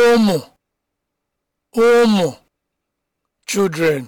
ụmụ ụmụ children